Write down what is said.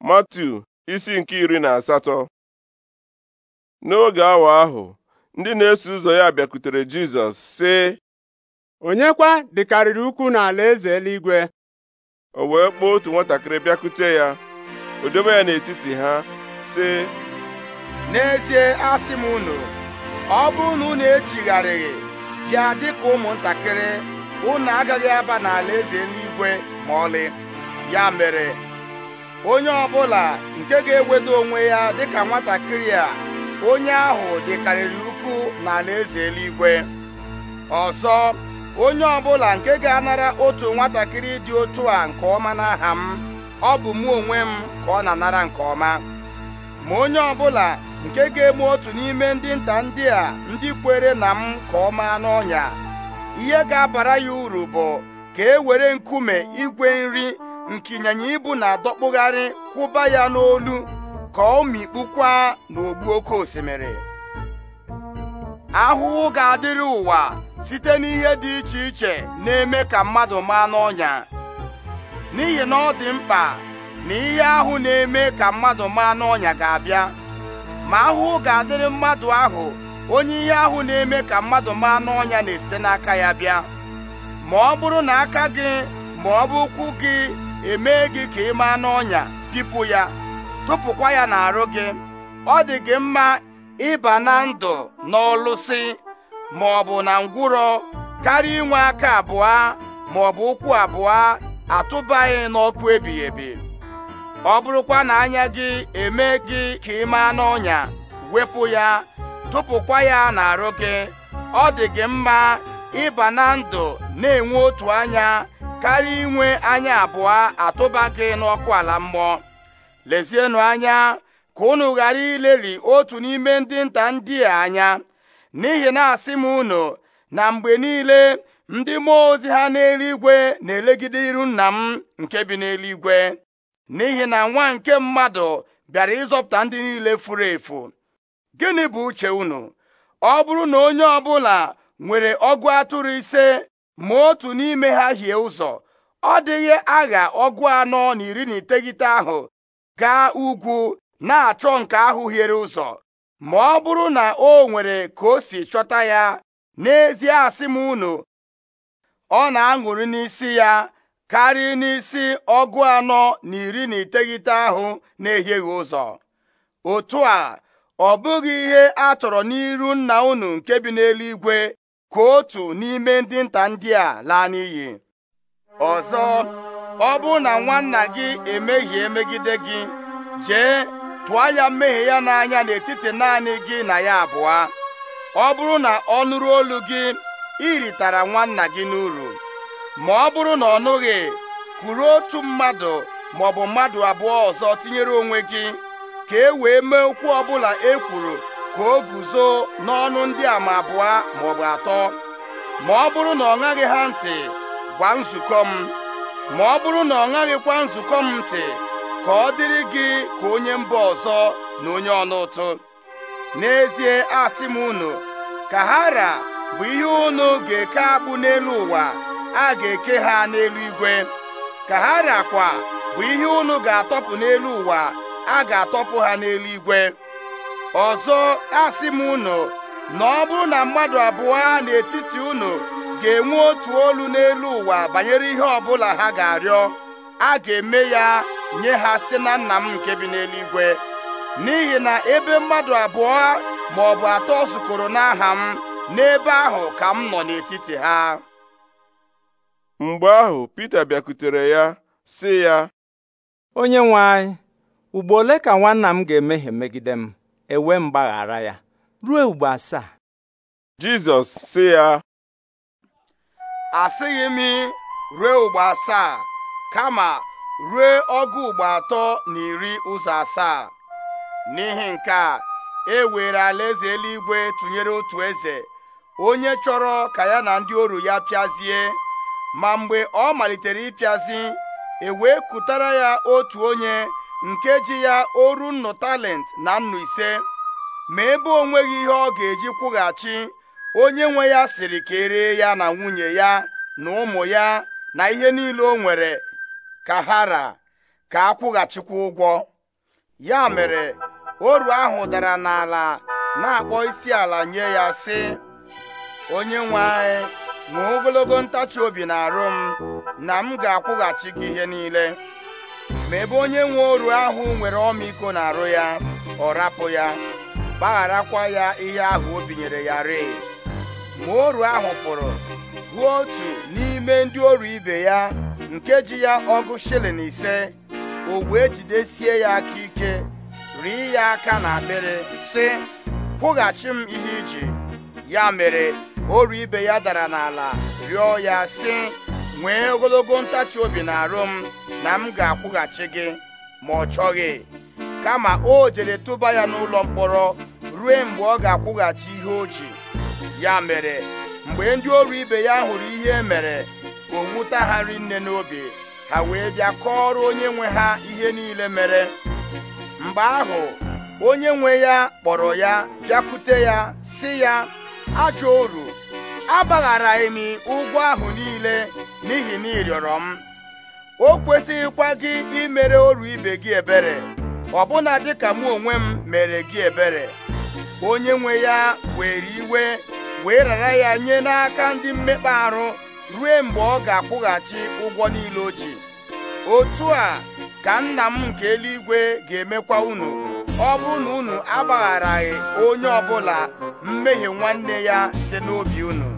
matu isi nke iri na asatọ n'oge awa ahụ ndị na-eso ụzọ ya bịakwutere Jizọs sị onye kwa dịkarịrị ukwu n'ala eze eluigwe o wee kpọọ otu nwatakịrị bịakute ya o dobe ya n'etiti ha sị n'ezie asị m unu ọ bụrụ na unu echigharịghị bịa dịka ụmụntakịrị unu agaghị aba n'ala eze eluigwe ma ọlị ya mere onye ọ bụla nke ga-ewedo onwe ya dịka nwatakịrị a onye ahụ dịkarịrị ukwu na alaeze eluigwe ọzọ onye ọ bụla nke ga-anara otu nwatakịrị dị otu a nke ọma n'aha m ọ bụ mụ onwe m ka ọ na-anara nke ọma ma onye ọ bụla nke ga-eme otu n'ime ndị nta ndị a ndị kwere na m ka ọ n'ọnya ihe ga-abara ya uru bụ ka e were nkume igwe nri nke ịnyịnya ibu na-adọkpụgharị kwụba ya n'olu ka ọ mikpukwa n'ogbu oke osimiri ahụhụ ga-adịrị ụwa site n'ihe dị iche iche na-eme ka mmadụ maa n'ọnya n'ihi na ọ dị mkpa na ihe ahụ na-eme ka mmadụ maa n'ọnya ga-abịa ma ahụhụ ga-adịrị mmadụ ahụ onye ihe ahụ na-eme ka mmadụ maa n'ọnya na-esite n'aka ya bịa ma ọ bụrụ na aka gị ma ọ bụ ụkwụ gị eme gị ka ị maa n'ọnya pipụ ya tụpụkwa ya n'arụ gị ọ dị gị mma ịba na ndụ n'ọlụsị ma ọ bụ na ngwụrọ karịa inwe aka abụọ ma ọ bụ ụkwụ abụọ atụbaghị n'ọkụ ebighị ebi ọ bụrụkwa na anya gị eme gị ka ị maa n'ọnya wepụ ya tụpụkwa ya n'arụ gị ọ dị gị mma ịba na ndụ na-enwe otu anya karịa inwe anya abụọ atụba gị n'ọkụ ala mmụọ lezienụ anya ka unu ghara ileli otu n'ime ndị nta ndị a anya n'ihi na asị m unu na mgbe niile ndị mmụọ ozi ha n'eluigwe na-elegide iru nna m nke bi n'eluigwe n'ihi na nwa nke mmadụ bịara ịzọpụta ndị niile furu efu gịnị bụ uche unu ọ bụrụ na onye ọbụla nwere ọgụ atụrụ ise ma otu n'ime ha hie ụzọ ọ dịghị agha ọgụ anọ na iri na iteghete ahụ gaa ugwu na-achọ nke ahụ hiere ụzọ ma ọ bụrụ na o nwere ka o si chọta ya n'ezie asị m unu ọ na-aṅụrị n'isi ya karịa n'isi ọgụ anọ na iri na iteghete ahụ na-ehieghị ụzọ otu a ọ bụghị ihe a chọrọ n'iru nna unu nke bi n'eluigwe ka otu n'ime ndị nta ndị a laa n'iyi ọzọ ọ bụrụ na nwanna gị emehie megide gị jee pụọ ya mmehie ya n'anya n'etiti naanị gị na ya abụọ ọ bụrụ na ọ nụrụ olu gị ị ritara nwanna gị n'uru ma ọ bụrụ na ọ nụghị kwuru otu mmadụ maọbụ mmadụ abụọ ọzọ tinyere onwe gị ka e wee mee okwu ọbụla e kwuru ka o guzo n'ọnụ ndị a ma abụọ maọbụ atọ ma ọ bụrụ na ọ ṅaghị ha ntị gwa nzukọ m ma ọ bụrụ na ọ ṅaghịkwa nzukọ m ntị ka ọ dịrị gị ka onye mba ọzọ na onye ọnụ ụtụ n'ezie asị m unu ka hara bụ ihe unu ga-eke agbụ n'elu ụwa a ga-eke ha n'elu igwe ka hara kwa bụ ihe unu ga-atọpụ n'elu ụwa a ga-atọpụ ha n'elu igwe ọzọ a asị m unu na ọ bụrụ na mmadụ abụọ n'etiti unu ga-enwe otu olu n'elu ụwa banyere ihe ọbụla ha ga-arịọ a ga-eme ya nye ha site na nna m nke bi n'eluigwe n'ihi na ebe mmadụ abụọ ma ọ bụ atọ zukọrọ n'aha m n'ebe ahụ ka m nọ n'etiti ha mgbe ahụ Pita bịakutere ya sị ya onye nwe anyị ugbo ole ka nwanna m ga-emehie megide m ewe mgbaghara ya ruo ugbo asaa jizọs sị ya asịghị m ruo ugbo asaa kama ruo ọgụ ugbo atọ na iri ụzọ asaa n'ihi nke a e were alaeze eluigwe tụnyere otu eze onye chọrọ ka ya na ndị oru ya pịazie ma mgbe ọ malitere ịpịazi e wee kụtara ya otu onye nkeji ya oru nnu talent na nnụ ise ma ebe onweghi ihe ọ ga-eji kwụghachi onye nwe ya siri ka eree ya na nwunye ya na ụmụ ya na ihe niile o nwere ka hara ka akwụghachikwa ụgwọ ya mere oru ahụ dara n'ala na-akpọ isi ala nye ya sị onye nwe anyị ma ogologo ntachi obi na arụ m na m ga-akwụghachi gị ihe niile ma ebe onye nwe oru ahụ nwere ọmịiko na-arụ ya ọ rapụ ya gbagharakwa ya ihe ahụ o binyere ya rịị ma oru ahụ pụrụ ruo otu n'ime ndị oru ibe ya nke ji ya ọgụ shilling ise o wee jidesie ya aka ike rie ya aka na akpịrị sị kwụghachi m ihe iji ya mere oru ibe ya dara n'ala rịọ ya sị nwee ogologo ntachi obi na-arụ m na m ga-akwụghachi gị ma ọ chọghị kama o jere tụba ya n'ụlọ mkpọrọ ruo mgbe ọ ga-akwụghachi ihe o ji ya mere mgbe ndị ọrụ ibe ya hụrụ ihe e mere o nwụta ha nne n'obi ha wee bịa kọọrọ onye nwe ha ihe niile mere mgbe ahụ onye nwe ya kpọrọ ya bịakwute ya sị ya ajọ oru agbagharaghị m ụgwọ ahụ niile n'ihi na ị rịọrọ m o kwesịghịkwa gị imere oru ibe gị ebere ọbụna dịka mụ onwe m mere gị ebere onye nwe ya were iwe wee rara ya nye n'aka ndị mmekpa ahụ ruo mgbe ọ ga-akwụghachi ụgwọ niile o ji otu a ka nna m nke eluigwe ga-emekwa unu ọ bụrụ na unu agbagharaghị onye ọbụla mmehie nwanne ya site n'obi unu